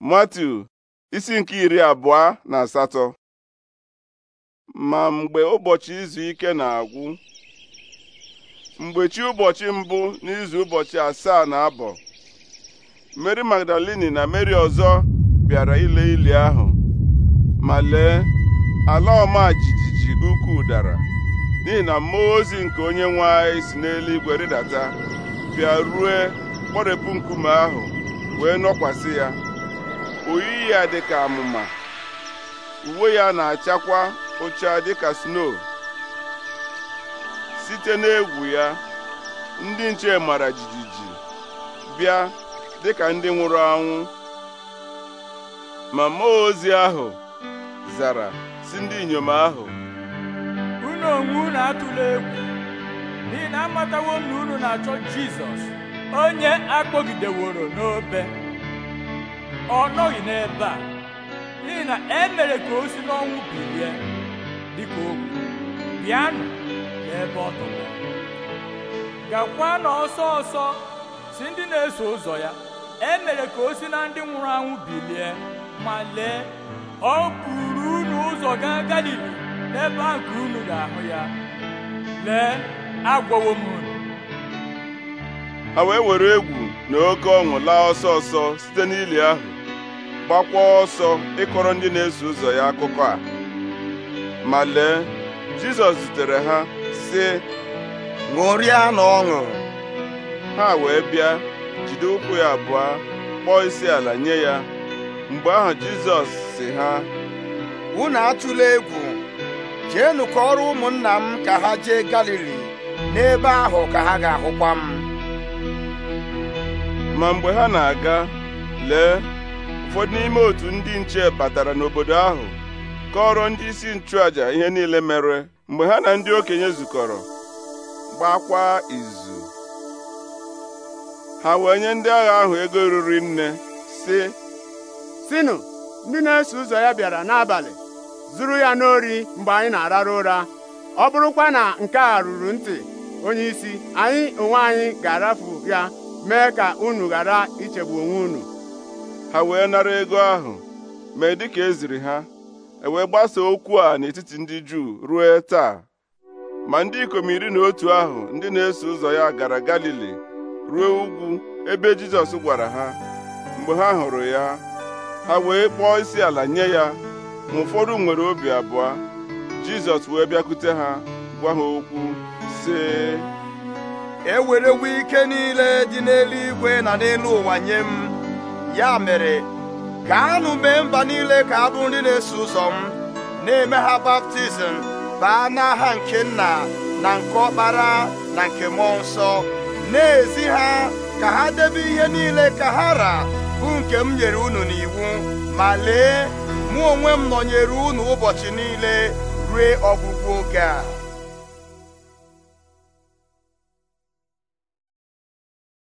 matu isi nke iri abụọ na asatọ ma mgbe ụbọchị izu ike na-agwụ mgbe chi ụbọchị mbụ n'izu ụbọchị asaa na abọ Mary Magdalini na Mary ọzọ bịara ile ili ahụ ma lee ala ọma jijiji ukwu dara n'ihi na mmụọ ozi nke onye nwe anyị si n'eluigwe rịdata bịa rue kpọrepụ nkume ahụ wee nọkwasị ya oyiyi ya ka amụma uwe ya na-achakwa ụcha dịka sno site n'egwu ya ndị nche mara jijiji bịa dị ka ndị nwụrụ anwụ ma mmụọ ozi ahụ zara si ndị inyom ahụ unu onwe unu atụla egwu n'ihi na amatawo unu na-achọ Jizọs onye akpọgideworo n'obe ọ nọghị n'ebe a n'ihi na e mere ka o si n'ọnwụ bilie dịka okwu bịanụ n'ebe ọ tọrọ gakwa na ọsọ ọsọ si ndị na-eso ụzọ ya e mere ka o si na ndị nwụrụ anwụ bilie ma lee ọ buru unu ụzọ gaa galili n'ebe a ka unu ga-ahụ ya lee agwọwo m unu ha wee were egwu na oke ọṅụ laa ọsọ ọsọ site n'ili ahụ gbakwa ọsọ ịkọrọ ndị na-eso ụzọ ya akụkọ a ma lee Jizọs zutere ha sị ṅụrịa na ọṅụ ha wee bịa jide ụkwụ ya abụọ kpọọ isi ala nye ya mgbe ahụ Jizọs sị ha unu atụla egwu ka ọrụ ụmụnna m ka ha jee Galili n'ebe ahụ ka ha ga-ahụkwa m ma mgbe ha na-aga lee ụfọdụ n'ime otu ndị nche batara n'obodo ahụ kọrọ ndị isi nchụaja ihe niile mere mgbe ha na ndị okenye zukọrọ gbakwa izu ha wee nye ndị agha ahụ ego ruru nne sị sinụ ndị na-eso ụzọ ya bịara n'abalị zuru ya n'ori mgbe anyị na-arara ụra ọ bụrụkwa na nke a ruru ntị onye anyị onwe anyị ga-arafu ya mee ka unu ghara ichegbu onwe unu ha wee nara ego ahụ mee dịka eziri ha ewee gbasaa okwu a n'etiti ndị Juu ruo taa ma ndị ikom iri na otu ahụ ndị na-eso ụzọ ya gara Galili ruo ugwu ebe Jizọs gwara ha mgbe ha hụrụ ya ha wee kpọọ isi ala nye ya ma ụfọdụ nwere obi abụọ Jizọs wee bịakwute ha gwa ha okwu sị ewerewo ike niile dị n'eluigwe na n'elu ụwa nye m ya mere gaanụ mee mba niile ka abụ nri na-eso ụzọ m na-eme ha baptizim baa n'aha nke nna na nke ọkpara na nke mmụọ nsọ na-ezi ha ka ha debe ihe niile ka ha ra bụ nke m nyere unu n'iwu ma lee mụ onwe m nọnyere unu ụbọchị niile rue ọgwụgwụ oge a